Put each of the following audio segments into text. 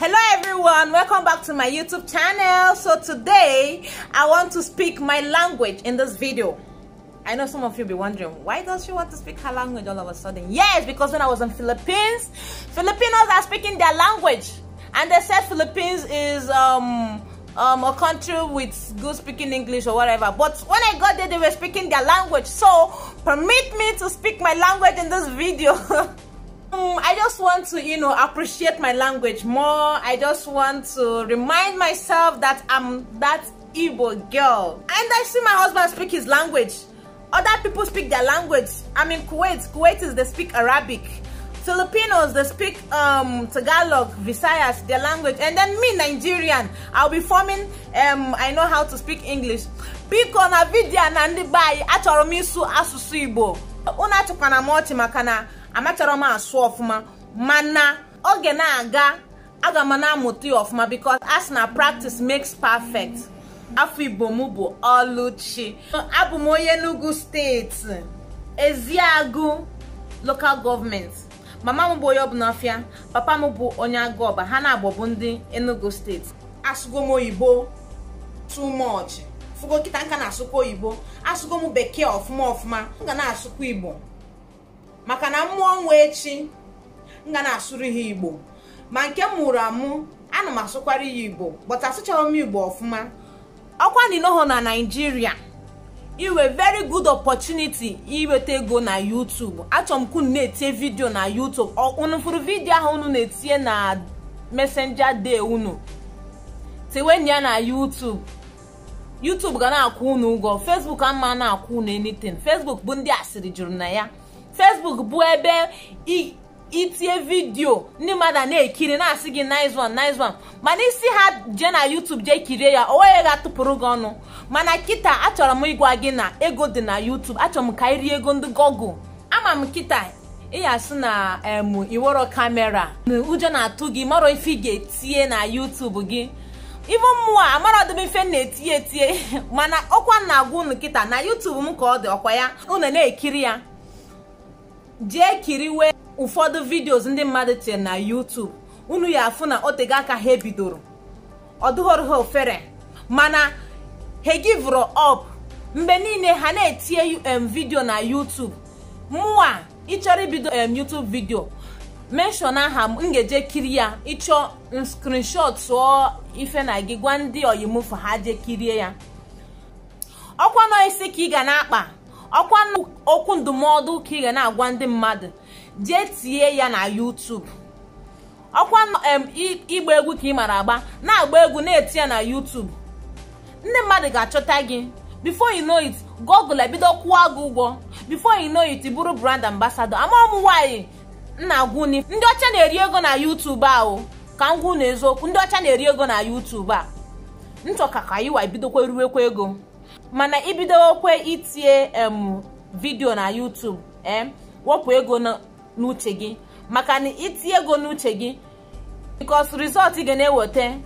hello everyone welcome back to my youtube channel so today i want to speak my language in this video i know some of you be wondering why does she want to speak her language all of a sudden yes because when i was in philippines filipinos are speaking their language and they said philippines is um um, a country with good speaking English or whatever. But when I got there, they were speaking their language. So permit me to speak my language in this video. Um, I just want to, you know, appreciate my language more. I just want to remind myself that I'm that Igbo girl. And I see my husband speak his language. Other people speak their language. I mean, Kuwait, Kuwaitis, they speak Arabic. Filipinos, they speak um, Tagalog, Visayas, their language. And then me, Nigerian, I'll be forming, um, I know how to speak English. Biko na vidya na ndị bayi, Igbo. Unu achọkwana m ọchị amachọrọ m asụ ọfụma mana oge na-aga aga m na-amụta ya ọfụma because as na practice makes perfect afọ igbo m bụ ọlụchi abụ m onye Enugu steeti eziagụ local gọọmenti mama m bụ onye ọbụnafịa papa m bụ onye ọba ha na-agbọbụ ndị enugu steeti asụgo m oyibo too much nka na-asụkwa oyibo asụgo m bekee ọfụma ọfụma m ga na-asụkwa igbo maka na mmụọ nwa echi nga na-asụrụ ha igbo ma nke m mụrụ amụ ana m asụkwara ya igbo bọta asụchara m igbo ọfụma ọkwa ninoho na naijiria inwe very good opportunity inweta ego na youtube achọrọ m ka na-etinye vidiyo na youtube unu fụrụ vidiyo ahụ unu na-etinye na messenger day unu tiwenye ya na youtube youtube ga na-akwụ unu ụgwọ facebook ama na-akwụ unu anything facebook bụ ndị asịrị juru na ya fesbuk bụ ebe itinye vidiyo ndị mmadụ na-ekiri na-asị gị nice one mana isi ha jee na YouTube jee kirie ya onweghị ga tụpụrụ gị ọnụ mana kịta achọrọ m ịgwa gị na ego dị na YouTube achọrọ m ka rie ego ndị Google ama m kịta ịya na em iwero kamera ụjọ na-atụ gị mara ife ị ga-etinye na YouTube gị ibu mmụọ amara ọdịbe ife na-etinye etinye mana ọkwa na-agwa ụnụ kịta na YouTube m ka ọ dị ọkwa ya unu na-ekiri ya jee kiriwe ụfọdụ vidiyo ndị mmadụ tinyere na YouTube unu ya afụ na otego aka ha bidoro ọ dụghọrọ ha ofere mana ha givụrụ up mgbe niile ha na-etinye um vidio na YouTube mụwa ịchọrọ ibido um YouTube vidio menshọn aha m ga kiri ya ịchọ screenshot tụọ ife na gị gwa ndị oyimufu ha je kirie ya ọkwa nọ ka ị ga na-akpa ọkwa okwu ndụmọdụ ka ị ga na-agwa ndị mmadụ jee tie ya na YouTube ọkwa ịgba egwu ka ị mara agba na-agba egwu na-eti ya na YouTube ndị mmadụ ga-achọta gị before you know it Google ebido kwụọ gị ụgwọ before you know it bụrụ brand ambassador ama m nwaanyị nna gwuni ndị ọcha na-eri ego na YouTube ahụ ka m gwu na eziokwu ndị ọcha na-eri ego na YouTube a nchọka ka iwa bidokwa ruwekwa ego mana okwe itie em vidio na YouTube em wepụ ego n'uche gị maka na itinye ego n'uche gị because rizọlt ị ga na-eweta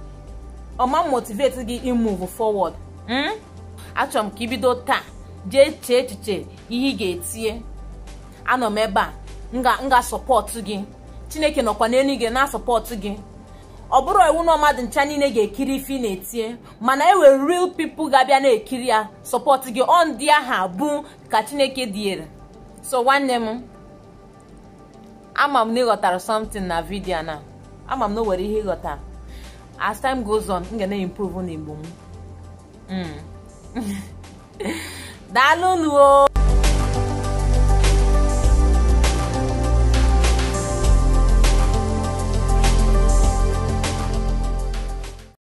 ọma motiveti gị imove forward hmm? achọrọ m ka ibido taa jee chee echiche ihe ị ga-etinye anọ m ebe a ga sọpọtụ gị chineke nọkwa n'elu na-asọpọtụ gị ọ bụrụ iwu na ọmadụ ncha niile ga-ekiri ife na-etinye mana e nwere real pipo ga-abịa na-ekiri ya sọpọt gị ọ ndị aha bụ ka chineke diere so nwanne m ama m na ịghọtara something na vidio na ama m na o nwere ihe ịghọta as time goes on m ga na-improve na igbo m hmm. daalụ